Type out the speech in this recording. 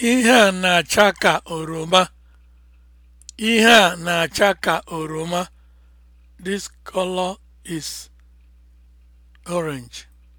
Ihe a na-acha ka oroma. Ihe a na-acha ka oroma. This color is orange.